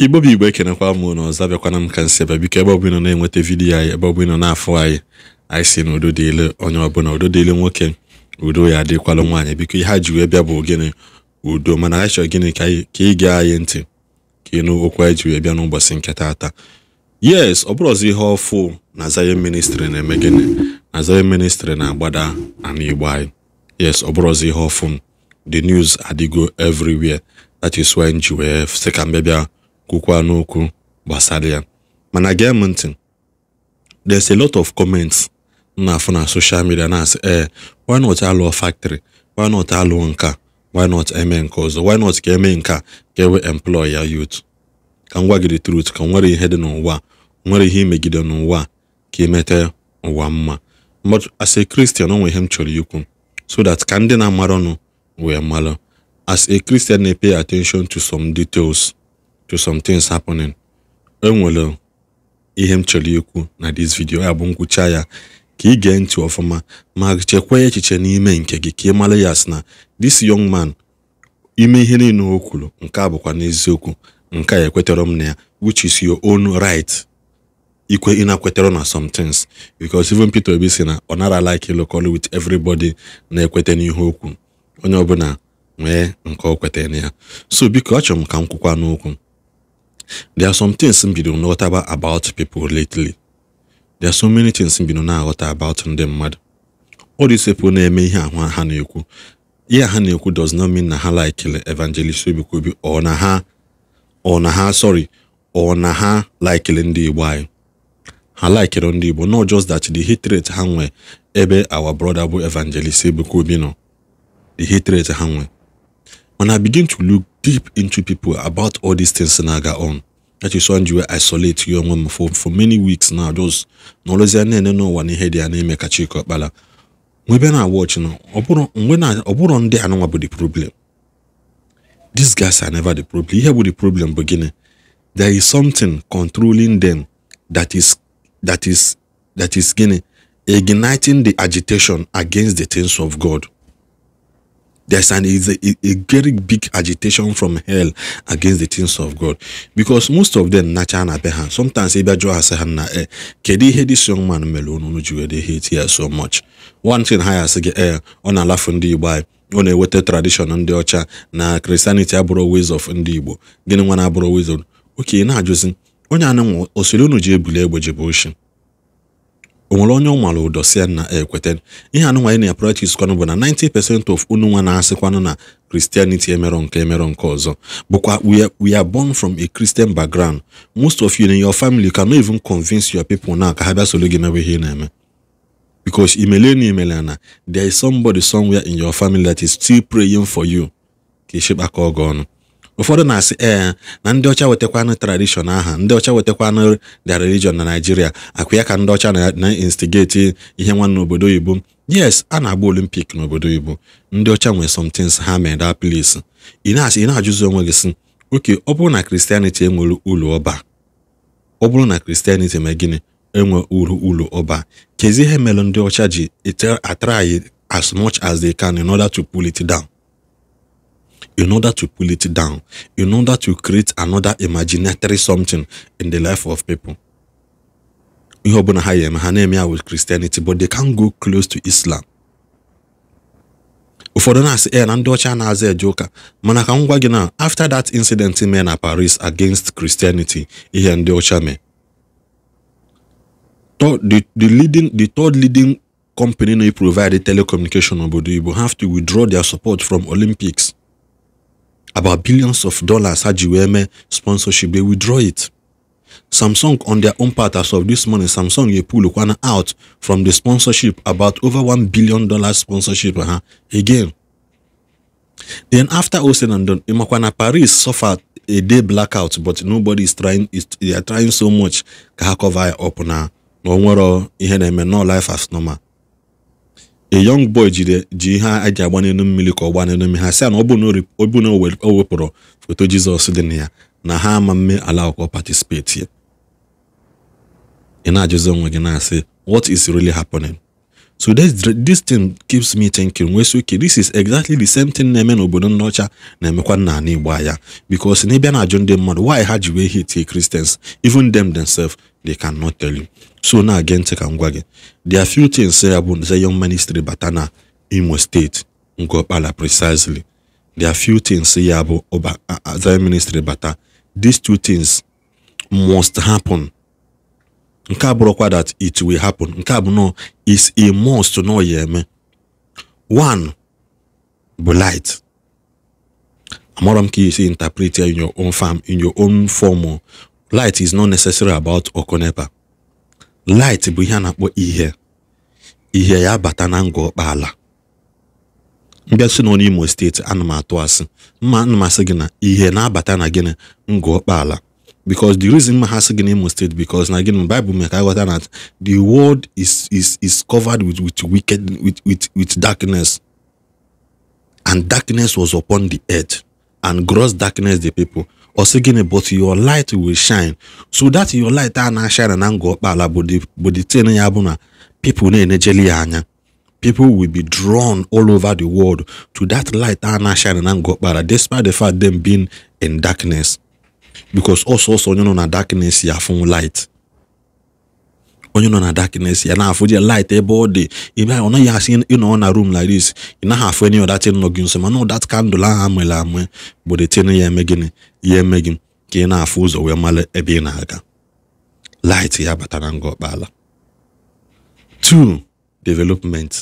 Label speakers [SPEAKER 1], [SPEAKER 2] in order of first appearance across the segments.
[SPEAKER 1] igbo bụ igbo ekenekwa m na ọzọ abịakwana m ka nsị ebe biko ebe ọbụla na-enweta vidiyo anyị ebe ọbụla na-afụ anyị anyị si na udo dịle onye ọbụla udo dịle nwoke udo ya adịkwala nwaanyị biko ihe a ji wee bịa bụ gịnị udo mana anyị chọrọ gịnị ka ị gaa anyị ntị ka ịnụ okwu anyị ji wee bịa n'ụbọchị nke taata yes ọ bụrụ ọzọ ihe ọfụ na Zion ministri na-eme gịnị na Zion ministri na-agbada ana igbo anyị yes ọ bụrụ ọzọ ihe ọfụ the news adịgo everywhere that is why nji wee sị ka bịa kwukwa n'okwu gbasara ya mana gee m ntị there's a lot of comments na-afụ na social media na-asị ee eh, why not alụọ factory why not alụọ nka why not eme nke ọzọ why not ka eme nka ka ewe employ ya youth ka m gwa gị truth ka nwere ihe dị n'ụwa nwere ihe imegide n'ụwa ka imete e ụwa mma but as a Christian onwe ihe m chọrọ ikwu so that ka ndị na amaranụ wee mara as a Christian na-pay attention to some details to some things happening. enwere ihe m chọrọ ikwu na this video ya bụ nkwụcha ya ka ị gee ntị ọfụma ma chekwaa echiche n'ime nke gị ka ị mara ya sị na this young man ime ihe niile o kwuru nke a bụkwa n'eziokwu nke a ekwetara m na ya which is your own right ikwe ị na-ekwetara na some things because even Peter Obi sị na ọ nara like ịlụkọlụ with everybody na-ekweta n'ihe okwu onye ọbụla nwee nke o kwetara na ya so biko achọrọ m ka m kwukwa n'okwu there are some things m bido nghọtaba about people lately there are so many things m bido na-aghọta about ndị mmadụ all these people na-eme ihe ahụ ha na-ekwu ihe ha na-ekwu does not mean na ha like evangelist obikobi ọ na ha ọ na ha sorry ọ na ha ndị igbo anyị ha likere ndị igbo not just that the hatred ha nwe ebe our brother bụ evangelist Ebuka Obi nọ the hatred ha begin to look deep into people about all these things Senaga on. That is when you were isolate young woman for, for many weeks now. Just knowledge and then no one heard their name make a check up. Bala. We been watching. When I on there, I know about the problem. These guys are never the problem. Here with the problem beginning. There is something controlling them that is that is that is getting igniting the agitation against the things of God. there's an is a, a, very big agitation from hell against the things of God because most of them nacha na be sometimes ebe jụọ ha na eh kedu ihe this young man mere unu ji hate here so much one thing ha ya sị eh ọ na-alafu ndị Igbo eh, anyị ọ na-eweta tradition ndị ọcha na Christianity abụrụ ways of ndị Igbo gịnị nwa na abụrụ ways of oke na-ajụzi onye anụ nwa ji ebuli egbe o nwere onye ọ mara ụdọ si na ekweta ihe anụnwa na practice kwanụ bụ na 90% of unu na-asịkwanụ na Christianity emerọ nke emerọ nke ọzọ bụkwa we are, born from a Christian background most of you in your family can no even convince your people now ka ha bịa soro gị ihe ị na-eme because imele na imele na there is somebody somewhere in your family that is still praying for you ka ịchịkpakọ ọgụ ọnụ ụfọdụ na-asị ee na ndị ọcha wetakwanụ tradishọn aha ndị ọcha wetakwanụ the religion na naijiria akwa ya ka ndị ọcha na-instigeti ihe nwanne obodo oyibo yes a na-agba olimpik n'obodo oyibo ndị ọcha nwere somethings ha mere that ị na ajụzi onwe gị si oke ọ bụrụ na kristianity enwere ụlọ ọba ọ bụrụ na kristianity mee gịnị enwe uru ụlọ ọba kezi ihe mere ndị ọcha ji atry as much as the can in order to pull it down. in order to pull it down, in order to create another imaginary something in the life of people. we ọbụla ha yeme ha na with Christianity but they can't go close to Islam ụfọdụ na-asị e eh, na mana na after that incident in na Paris against Christianity eh? ndị ọcha mee the, the, leading, the third leading company na-provide telecommunication they will have to withdraw their support from Olympics about billions of dollars Haji Weme sponsorship, they withdraw it. Samsung, on their own part, as of this morning, Samsung you pull Lukwana out from the sponsorship about over one billion dollars sponsorship uh -huh, again. Then after all said and done, Imakwana Paris suffered a day blackout, but nobody is trying. Is, they are trying so much. Kahakova up uh, now. No more. Oh, I have No life as normal. a young boy ji ihe a agba n'elu mmiri ka ọ gbaa n'elu mmiri ha si na ọ bụ na o wepụrụ foto jizọs dị na ya na ha ama mme ala akwụkwọ patisipeti ị na-ajụzi onwe gị na-asị what is really happening So this, this thing keeps me thinking wey sị this is exactly the same thing na-eme n'obodo ndị na-emekwa n'ala Igbo anya because na ịbịa na-ajụ ndị mmadụ why ha ji wee hate Christians even them themselves they cannot tell you. So na again take am gwa gị there are few things ya bụ Zion Ministry bata na Imo State ngopala precisely there are few things ya bụ Zion Ministry bata uh, these two things must happen. nke a bụrụkwa that it will happen nke a bụ no is a must nọ ya eme one bụ light amọrọ m ka isi interpret ya in your own farm in your own form light is not necessary about ọkụ nepa light bụ ihe a na-akpọ ihe ihe ya bata na ngọ kpaala mbịa si nọ n'Imo steeti ana m atụ asị mma ana m asị gị na ihe na-abata na gịnị ngọ because the reason m ha sị gị na because again the bible mee ka a that the world is is is covered with with wicked with with with darkness and darkness was upon the earth and gross darkness the people ọ sị but your light will shine so that your light a ah, na-ashine na ngwa but the tin ya people na-enejeli people will be drawn all over the world to that light a ah, na-ashine na ngwa despite the fact them being in darkness because ọsọsọ onye nọ na darkness ya afụ light onye nọ na darkness ya na-afụ je light ebe ọ dị ebe ọ naghị asị ịnọ na room like this ị naghị afụ enyi ọdatin nọ gị nso mana ọdat kandụl ahụ amụla amụ gbodetin ya eme gịnị ya eme gị ka ị na-afụ ụzọ wee mara ebe ị na-aga light ya na ngọ ọkpala two development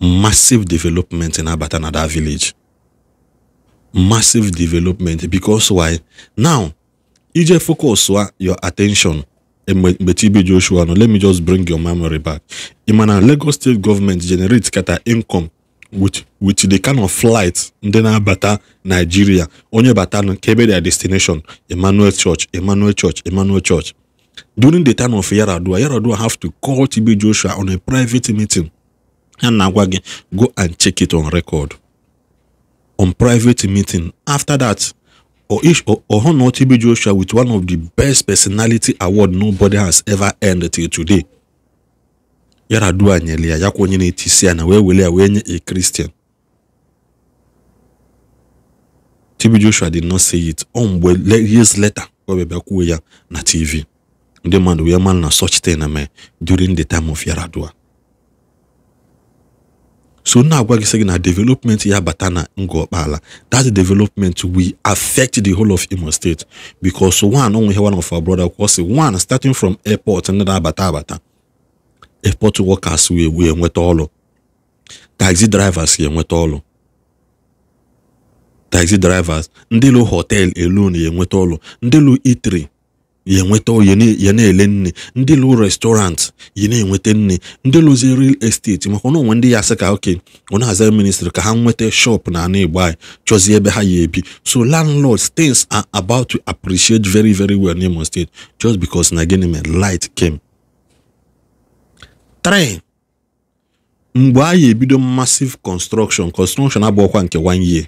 [SPEAKER 1] massive development na-abata na that village massive development because why now ije focus your attention e mgbe Chibi Joshua no let me just bring your memory back imana na Lagos State Government generate kata income with with the kind of flight ndị na-abata Nigeria onye bata nke kebe their destination Emmanuel Church Emmanuel Church Emmanuel Church during the time of Yaradua Yaradua have to call Chibi Joshua on a private meeting ha na-agwa go and check it on record on private meeting. After that, Oish Ohonor TB Joshua with one of the best personality award nobody has ever earned till today. Yaradua nyelia yako Tisiana, itisia na wewelea wenye a Christian. TB Joshua did not say it. Omwe years later, webebe kuwe ya na TV. Ndị we wee na such thing na me during the time of Yaradua. so na-agwa gị sị na development ya bata na ngụ ọkpala that development will affect the whole of Imo State bicos one onwe ihe one of our brother kwuo one starting from airport ndị na-abata abata airport workers wee wee nweta taxi drivers ga-enweta ọlụ taxi drivers ndị lụ hotel alone enweta ọlụ ndị lụ itri ya enweta ya na-ele nne ndị lụ restaurant yi na-enweta nne ndị lụzi real estate maka na onwe ndị ya sị ka oke ọ na-aza ministrị ka ha nweta shop na ana igbo anyị chọzie ebe ha ya ebi so landlords things are about to appreciate very very well n'Imo State just because na gịnị mere light came. 3 mgbe a anyị ebido massive construction construction abụọkwa nke one year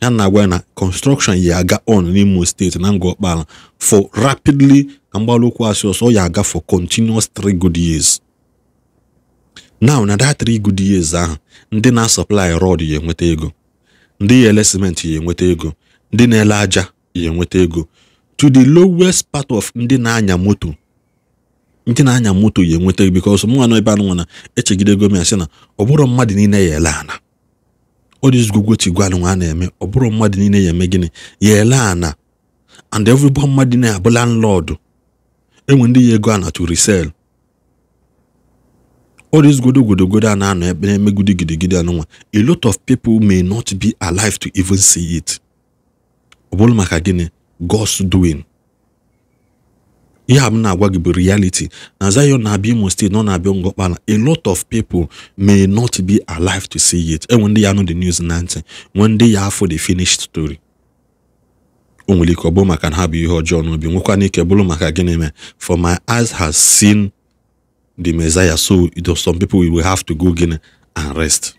[SPEAKER 1] ya na-agwa na construction ya aga on n'Imo steeti na ngwa ọkpara for rapidly na ụkwụ asị ọsọ ya aga for continuous three good years now na that three good years ahụ ndị na-asọplai rod ya enweta ego ndị ele cement ya enweta ego ndị na-ele aja ya enweta ego to the lowest part of ndị na-anya moto ndị na-anya moto ya enweta ego because mụ nwa nọ ebe anụ nwa na m ya sị na ọ bụrụ mmadụ niile ya ele ana odizugwugochi gwanụ nwa a na-eme ọ bụrụ mmadụ niile ya eme gịnị ya ele ana and everybody mmadụ na-abụ landlord enwe ndị ya ego a na to resell all this godogodogodo a na-anọ ebe na-eme gidigidi anụnwa a lot of people may not be alive to even see it ọ bụrụ maka gịnị God's doing ihe a m na-agwa gị bụ reality na Zion na-abịa Imo State nọ na-abịa Ngọkpala a lot of people may not be alive to see it enwe ndị ya anụ the news na ntị nwe ndị ya afọ the finished story o nwere ike ọ bụrụ maka na ha bụ ihe ọjọọ n'obi nwekwana n'ike bụrụ maka gịnị mee for my eyes has seen the Messiah so some people will have to go gịnị and rest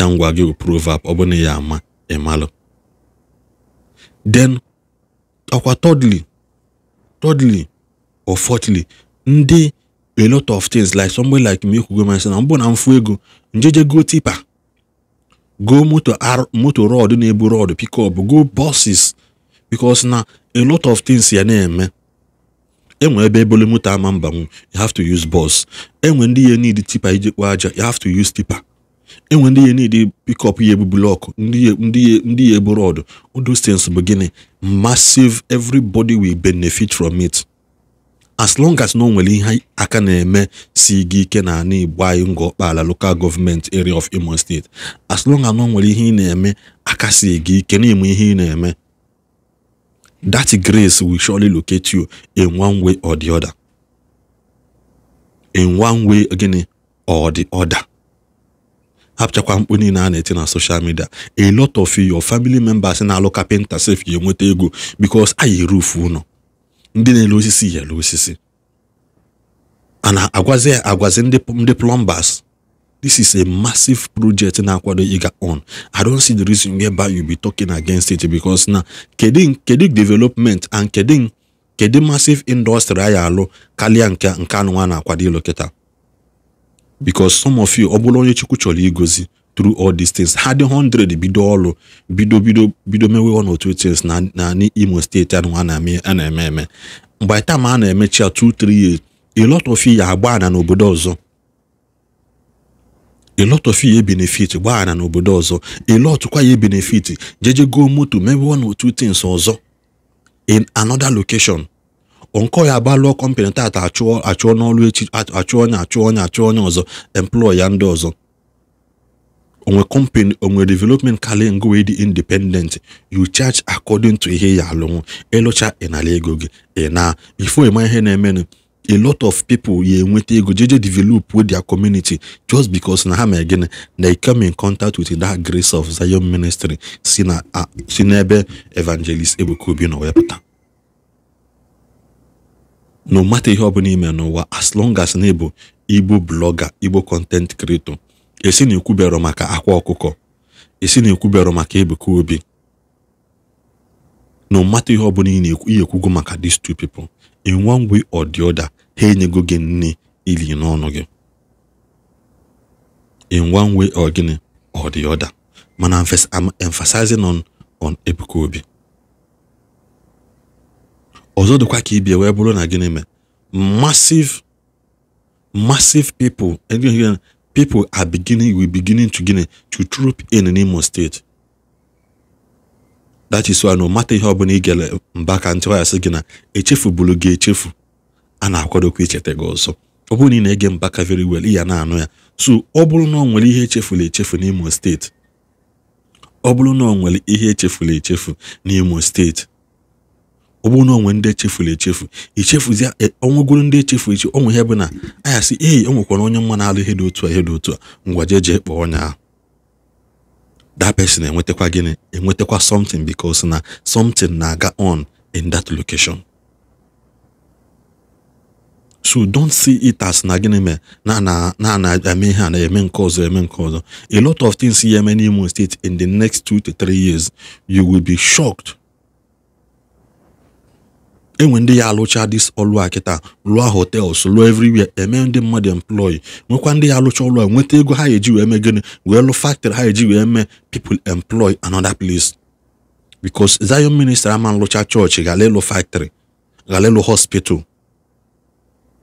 [SPEAKER 1] ya ngwa gị bụ proverb ọ bụ na ya ama ịmalụ then ọkwa thirdly thirdly or fourthly ndị a lot of things like somebody like me go myself na mbụ na mfu ego njeje go tipa go moto moto rod na-ebu rod up go buses because na a lot of things ya na-eme enwe ebe ebole moto ama mbanwu you have to use bus enwe ndị ya need tipa iji kpọọ aja you have to use tipa enwe ndị ihe niile ede pikọp ihe bụ blọkụ ndị ihe ebu ọdụ those stens bụ gịnị massive everybody will benefit from it as long as na o nwere ihe aka na-eme si gị ike na ana igbo anyị ngọ local government area of Imo State as long as na nwere ihe ị na-eme aka si gị ike na ihe ị na-eme that grace will surely locate you in one way or the hapụchakwa mkpu niile a na-eti na social media a lot of your family members na-alụ kapịnta sef ga-enweta ego because anyị rufu ụlọ ndị na-ele osisi yere osisi ana na-agwazi agwazi ndị plumbers this is a massive project na-akwado ịga on i don't see the reason whereby you be talking against it because na kedu kedu development and kedu kedu massive industry anyị alụ karịa nke nke anụnwa na-akwado ịlụ kịta because some of you ọ bụla onye Chukwu chọrọ igozi through all these things ha dị 100 bido ọrụ bido bido bido mewe ọ n'otu tins things na Imo steeti anụnwa a na-eme eme mgbe tam a na-emechi ya 2 3 years a lot of ya agba na n'obodo ọzọ a lot of ya benefit gbaa na n'obodo ọzọ a lot kwa ya benefit jeje go moto mewe ọ n'otu tins ọzọ in another location nkọ ya agbalụọ kọmpanị tata achụọ achụọ echi achụọ onye achụọ onye achụọ onye ọzọ employ ya ndị ọzọ onwe kọmpanị onwe development karịa ngo wee dị independent you charge according to ihe ya alụnwụ ịlụcha e ịnara e ego gị ịna e na ifo ịma ihe na-emenụ a lot of people ya enweta ego jeje develop with their community just because na ha ma gịnị na come in contact with that grace of Zion ministry si na si n'ebe evangelist Ebuka Obi nọ wee pụta na mata ihe ọbụla ime n'ụwa as long as na ịbụ igbo blọga igbo kọntent kreto esi na ekwubero maka akwa ọkụkọ esi na ekwubero maka ebuka obi na mata ihe ọbụla ị na-ekwu ihe ekwugo maka these two people in one way or the other ha enyego gị nne ili n'ọnụ gị in one way or gịnị or the other mana I'm emphasizing on on Ebuka Obi ọzọ dịkwa ka ibie wee bụrụ na gịnị mee massive massive people people are beginning we beginning to gịnị to troop in n'Imo steeti that is why no mata ihe ọbụla ị gere mba ka ntị asị gị na echefubulu gị echefu a na-akwadokwa icheta gị ọzọ ọ bụrụ na ị na-ege Mbaka very well ị ya na-anụ ya so ọ bụrụ na ọ nwere ihe echefula echefu n'Imo steeti ọ bụrụ na ọ nwere ihe echefula echefu n'Imo steeti ọ bụrụ ndị echefuru echefu echefuzie ọnwụgoro ndị echefu echi onwe ihe bụ na anya sị eyi o nwekwara onye mma na-alụ ihe dị otu a ihe dị otu a ngwa jee jee kpọọ ọnya ahụ that person enwetakwa gịnị enwetakwa something because na something na-aga on in that location so don't see it as na gịnị mee na na na eme ihe a na-eme nke ọzọ eme nke ọzọ a lot of things ya eme n'Imo State in the next two to three years you will be shocked enwe ndị ya alụcha dis ọlụ a kịta lụọ hotels lụọ emee eme ndị mmadụ employ nwekwa ndị ya alụcha ọlụ nweta ego ha eji wee mee gịnị wee lụ factory ha eji wee mee people employ another plis. because Zion ministr ama nlụcha chọọchị gara ịlụ factory gara ịlụ hospital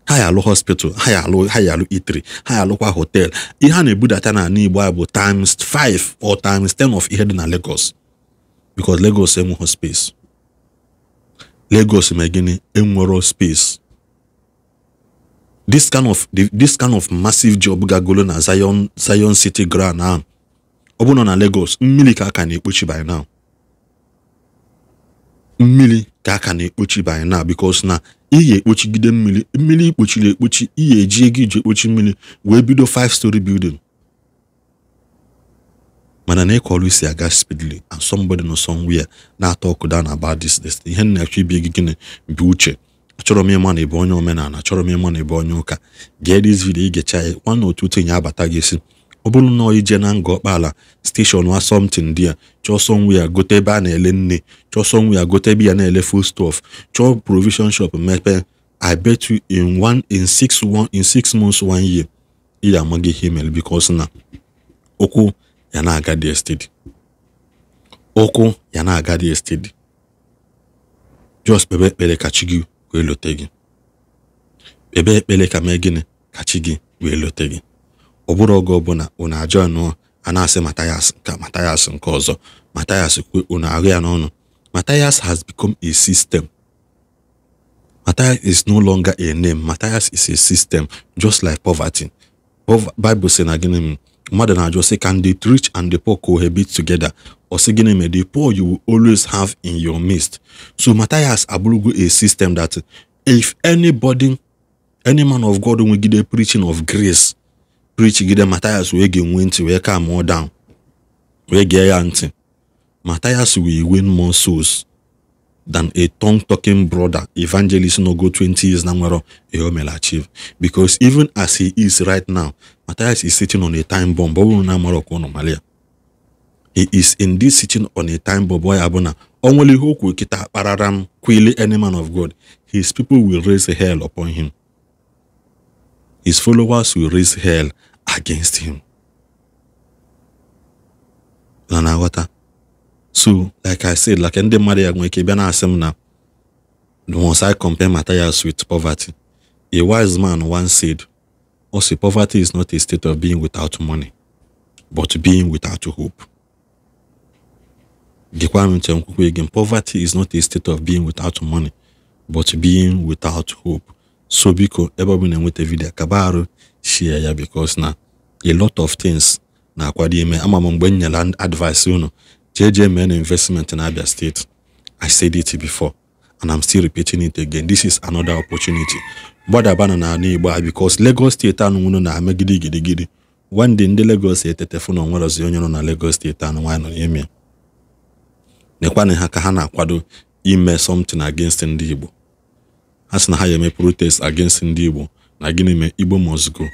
[SPEAKER 1] ha ya alụ hospital ha ya alụ ha ya alụ itri e ha ya alụkwa hotel ihe a na-ebudata n'ala Igbo a bụ times 5 or times 10 of ihe dị na Lagos because Lagos enweghị space Lagos ma gịnị enwero space this kind of this kind of massive job gagolo na Zion Zion City ground ahụ ọ bụrụ na Lagos mmiri ka aka na-ekpochi by now mmiri ka aka na-ekpochi by now because na ị ekpochi ekpochigide mmiri mmiri ikpochiri ekpochi ị ga-eji ego iji ekpochi mmiri wee bido five story building mana na ịkọrọ isi aga speedily and somebody nọ somewhere na-atọ ọkụ na this this ihe na-achọ ibi gị gịnị bụ uche achọrọ m ịma na ebe onye omenala achọrọ m ịma na ịbụ onye ụka gee this video igecha ya nwana otu tinye abata gị si ọ bụrụ na ije na nga ọkpala steshọn wa somtin dị ya chọọ sọnwe gote ebe a na-ele nne chọọ sọnwe gote ebe ya na-ele full stọf chọọ provision shop mepe i bet you in one in six one in six months one year ị ga amaghị ihe mere because na okwu ya na-aga dị estidi ụkwụ ya na-aga dị estidi jos kpebe ekpere ka chi gị wee lote gị kpebe ekpere ka mee gịnị ka chi gị wee lote gị ọ bụrụ oge ọbụla unu ajọ nụọ a na-asị matayas nke matayas nke ọzọ matayas kwe unu ahụ ya n'ọnụ matayas has become a system Matayas is no longer a name. Matayas is a system, just like poverty. Bible saying again, mmadụ na-ajụ sị can the rich and the poor cohabit together ọ sị gịnị mere the poor you will always have in your midst so Matthias abụrụgo a system that if anybody any man of God nwegide preaching of grace preach gide Matthias wee ga-enwe ntị wee calm down wee gee ya ntị Matthias will win more souls than a tongue talking brother, evangelist Nogo 20 years Namwero Eomel achieve. Because even as he is right now, Matthias is sitting on a time bomb. He is indeed sitting on a time bomb. Why Abona? Only who could kita pararam quili any man of God. His people will raise hell upon him. His followers will raise hell against him. Lanawata. so like i said like ndị mmadụ ya nwere ike bịa na-asị m na once i compare materials with poverty a wise man once said also poverty is not a state of being without money but being without hope gekwa m nche nkwukwe again poverty is not a state of being without money but being without hope so biko ebe ọ bụ na-enweta vidiyo kaba arụ share ya because na a lot of things na-akwado ime ama m mgbe m nyere advice unu JJMN investment in Abia State. I said it before, and I'm still repeating it again. This is another opportunity. gbadabana n'ala Igbo because Lagos steeti anụnwụnụ na gidi gidi one day ndị Lagos etetefu na onwere ozi onye nọ na Lagos steeti anụ nwaanyị nọ n'ime nekwana ha ka ha na-akwado ime something against ndị Igbo ha sị na ha ga-eme protest against ndị Igbo na gịnị mee Igbo must go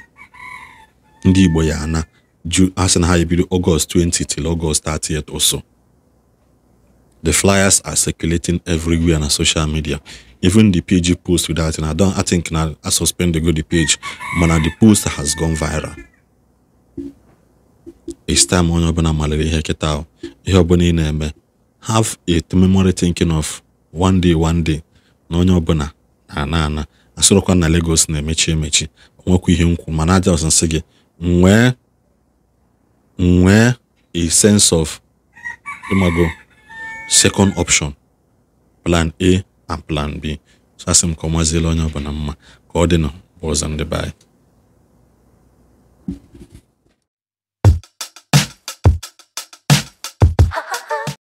[SPEAKER 1] ndị Igbo ya ana ju asị na ha ebido August 20 till August 30th or so. The flyers are circulating everywhere na social media. Even the pg post with that, and I don't I think na I suspend the go the page, mana the post has gone viral. It's time onye ọbụla maliri ihe kịta ihe ọbụla ị na-eme have a memory thinking of one day one day na onye ọbụla na-ana ana na Lagos na-emechi emechi onwekwa ihe nkwu mana aja ọsịnsị gị nwee nwee a sense of ịmago second option plan A and plan B so asị m ka ọ maziela onye na mma ka ọ dị na ọzọ ndị